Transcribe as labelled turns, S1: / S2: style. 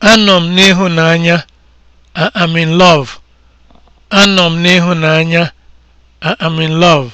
S1: Anọ m n'ịhụnanya. I am in love. Anọ m n'ịhụnanya. I am in love.